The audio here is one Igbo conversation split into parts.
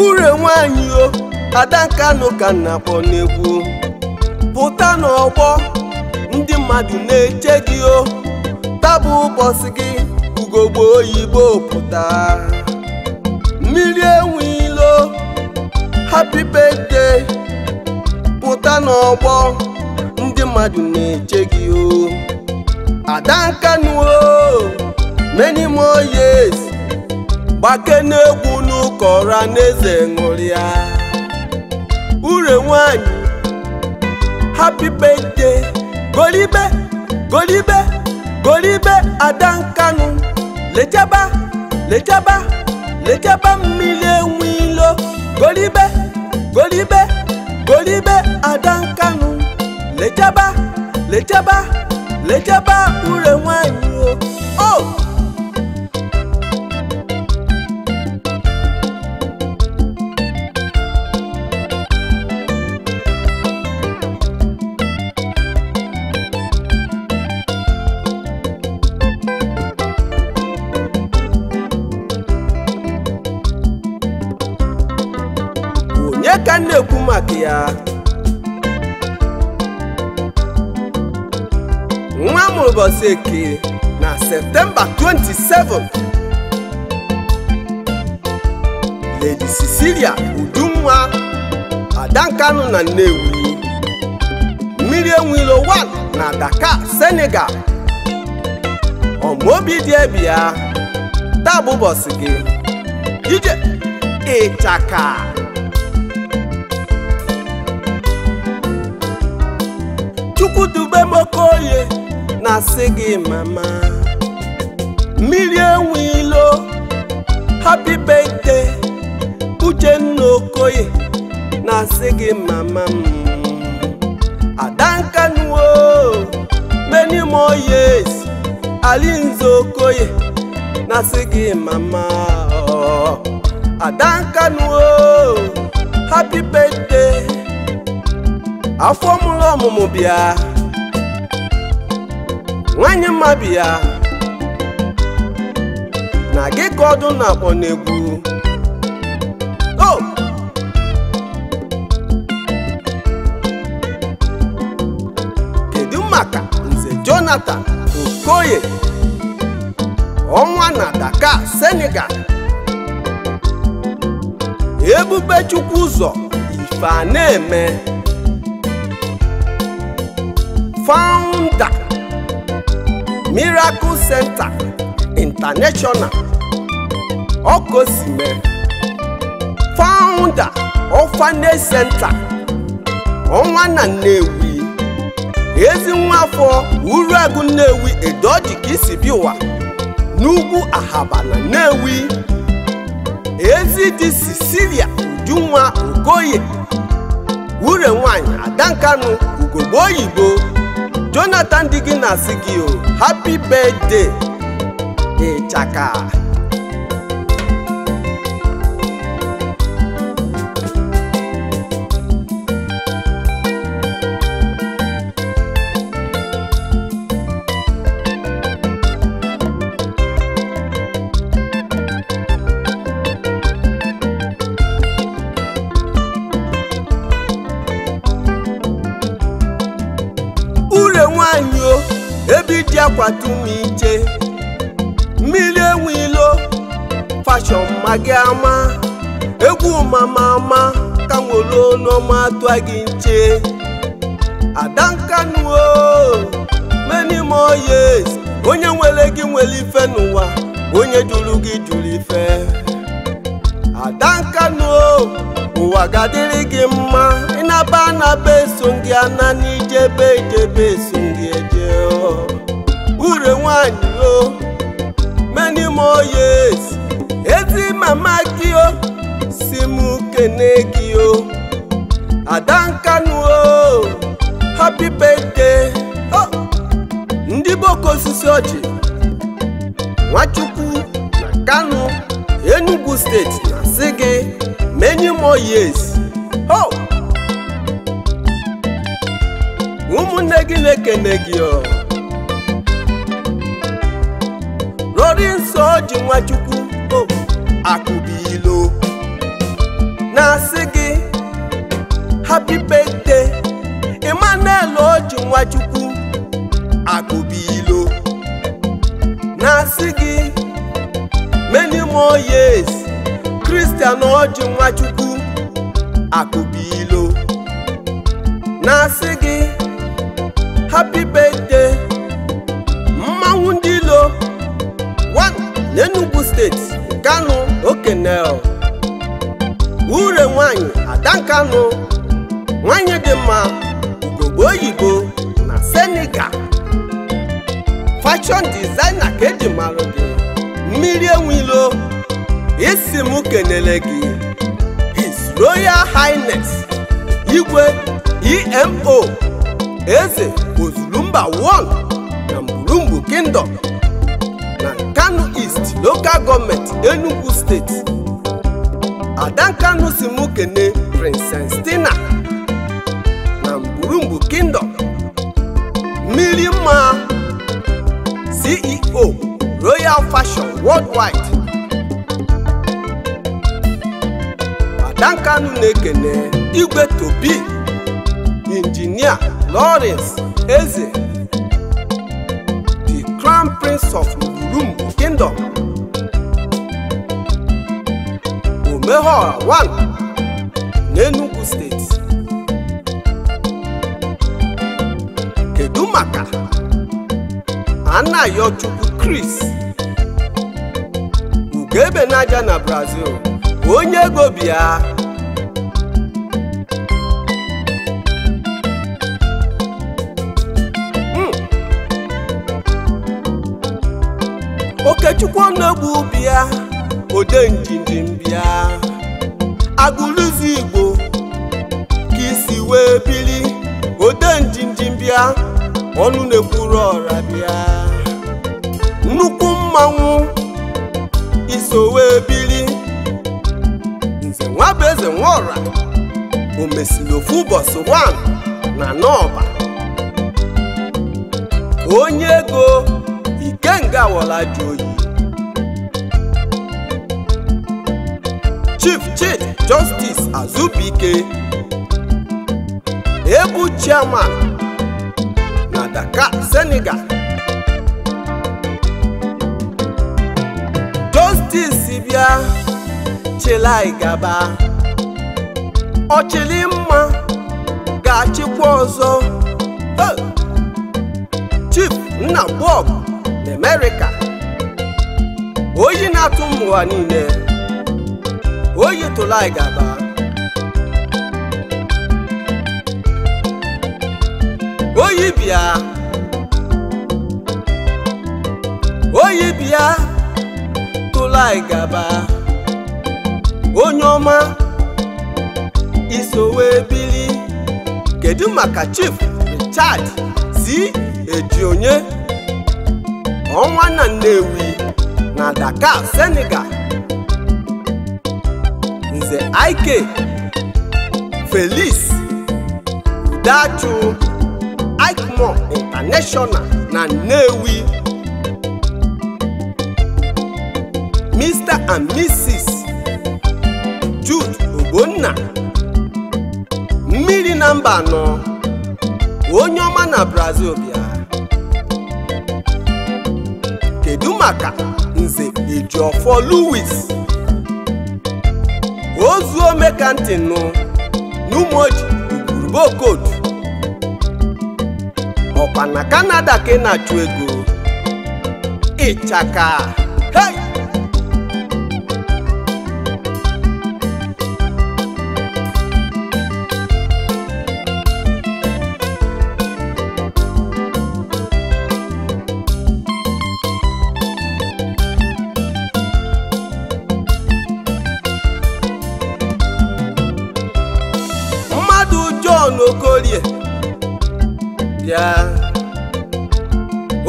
ure nwanyị o adankanụ ka na-akpọ n'egwu pụta n'ọgbọ ndị mmadụ na-eche gị o tabụ ụbọchị gị ugogbe oyibo pụta mmiri enwe enwilo happy birthday pụta n'ọgbọ ndị mmadụ na-eche gị o adankanụ o many more years gbake n'egwu kọra n'eze ṅụrịa ure nwanyị happy birthday golibe golibe golibe ada nkanụ lechaba lechaba lechaba mmiri enwe ilo golibe golibe golibe ada nkanụ lechaba lechaba lechaba ure ka m na-ekwu maka ya nwa mụrụ ụbọchị eke na septemba 27 ledi cecilia udunwa adankanụ na nnewi mmiri enwilo 1 na dakar senegal ọmaobi dị ebia taa bụ ụbọchị gị ije ịchaka chukwudube onye na-asị gị mama mmiri enwe ilo happy birthday uchenna okoye na-asị gị mama m adankanuo many more years alinze okoye na-asị gị mama adankanuo happy birthday afọ mụrụ ọmụmụ bịa nwanyị mma bịa na gị ka ọdụ na-akpọ o kedu maka nze Jonathan Okoye ọnwa na daka Senegal Ebubechukwu ụzọ ife a na-eme founder Miracle Center International Okosime founder Orphanage Center ọnwa na Nnewi ezi nwafọ Uruagu Nnewi Edoji ka ụwa n'ugwu Ahaba na Nnewi ezi di Cecilia Udunwa Okoye wure nwanyị Adankanu ugogbe oyibo Jonathan dị gị na-asị gị o happy birthday ịchaka kwatu m ije mmiri ewu ilo fashọn magị ama egwu mama ama ka nwolonoma tụa gị nche adankanu many more years onye nwere gị nwere ife n'ụwa onye juru gị jụrụ ife adankanu ụwa ga-adịrị gị mma ịnaba anaba eso gị ana n'ijebe ijebe nwanyị o many more years ezi mama gị o si m kene gị o Ada Nkanu o happy birthday oh, ndị boko osisi ọjị Nwachukwu na Kanu Enugu steeti na-asị gị many more years ho oh, ụmụnne gị na-ekene gị o oji nwachukwu o akụbilo na-asị gị happy birthday Emmanuel oji nwachukwu akụbilo na-asị gị many more years Christian oji nwachukwu akụbilo fashọn dizaina ka eji marụ gị mmiri enwilo isi m kenele gị His Royal Highness Igwe EMO Eze Ozulumba 1 na Murumbu Kingdom na Kano East Local Government steeti State Adankanu si m kene Princess na Murumbu Kingdom mmiri mma CEO Royal Fashion Worldwide Adankanu na-ekene Igwe Tobi engineer Lawrence Eze The Crown Prince of Ngurumbu Kingdom Omehola 1 n'Enugu Steeti kedu maka kris Chris naja na Brazil onye ego bi ya hmm. Okechukwu Onegbu bịa ode njinjin bịa Agụlụzi Igbo ka isi wee biri ode njinjin bịa ọnụ na-ekwuru ọra bịa nnukwu mmanwụ isowe biri nze nwa bụ nwaọra o ofu na n'ọba onye ego ikenga wọla dị oyi Chief Chief Justice Azubike egwu chairman na Dakar Senegal disi bịa chịlị gaba ọchịlị mma ga-achịkwa ọzọ Chief nna Bob n'Amerịka oyi na-atụ m ụwa niile oyi tụla gaba oyi bịa oyi bịa Dubai gaba onye ọma isowe bili kedu maka Chief Richard si onye ọnwa na Nnewi na Dakar Senegal Nze Ike Felix Udachu ikmo International na Nnewi and Mrs. Jude obonna mmiri na mba anọ onye ọma na Brazil bịa kedu maka nze Ejiofor Louis ozuo mekantinu n'Umoji Ugurubokotu ọkwa na Kanada ka ị na-achụ ego ịchaka hei okolie bịa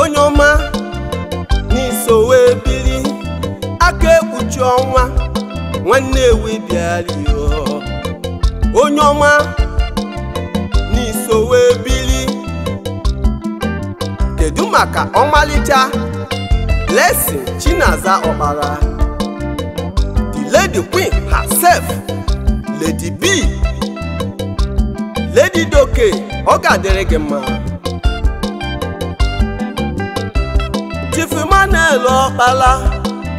onye ọma n'iso wee aka ekpuchi ọnwa nwanne ewe bịalio onye ọma n'iso wee bili kedu maka ọmalịcha lesin Chinaza ọkpara? the lady queen herself Lady B Lady Doke ọ ga-adịrị gị mma Chief Ọkpala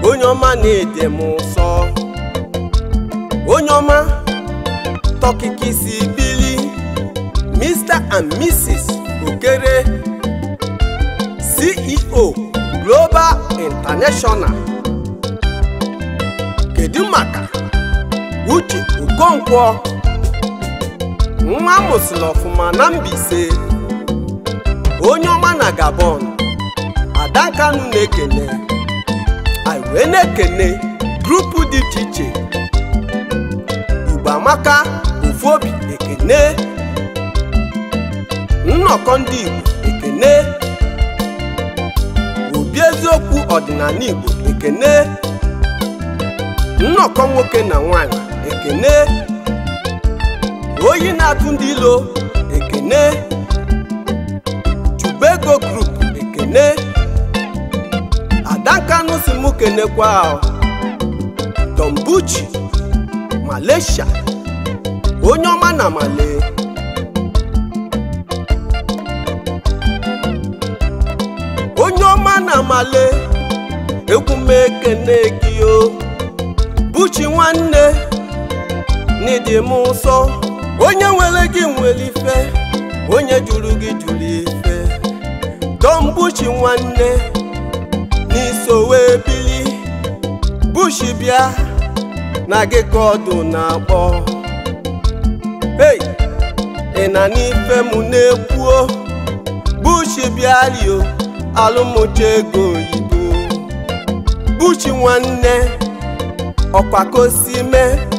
onye ọma na-ede m ụsọ onye ọma tọkịka bili Mr and Mrs Okere CEO Global International kedu maka Uche Okonkwo nwa mụsịrị ọfụma na Mbaise onye ọma na Gabon Ada na-ekene aiwe na-ekene grupu dị iche iche Igbo amaka Ofobi ekene nnọkọ ndị Igbo ekene obi eziokwu ọdịnala Igbo ekene nnọkọ nwoke na nwanyị ekene oyi na-atụ ndị ilo ekene chubego grup ekene adankanụ si mụ kenekwa dombuchi malaysia onye ọma na male onye ọma na male gị o buchi nwanne n'ịdị m nsọ onye nwere gị nwere ife onye jụrụ gị jụrụ ife Don Bushi nwanne n'iso wee bili Bushi bịa na gị ka ọdụ na-akpọ ị na n'ife m na-ekwuo Bushi bịa rio alụmụcha ego oyibo Bushi nwanne ọkwakosi mee